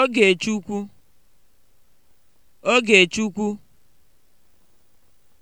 Ogechukwu Ogechukwu